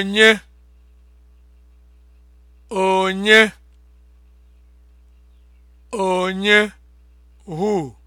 onye onye onye Hu?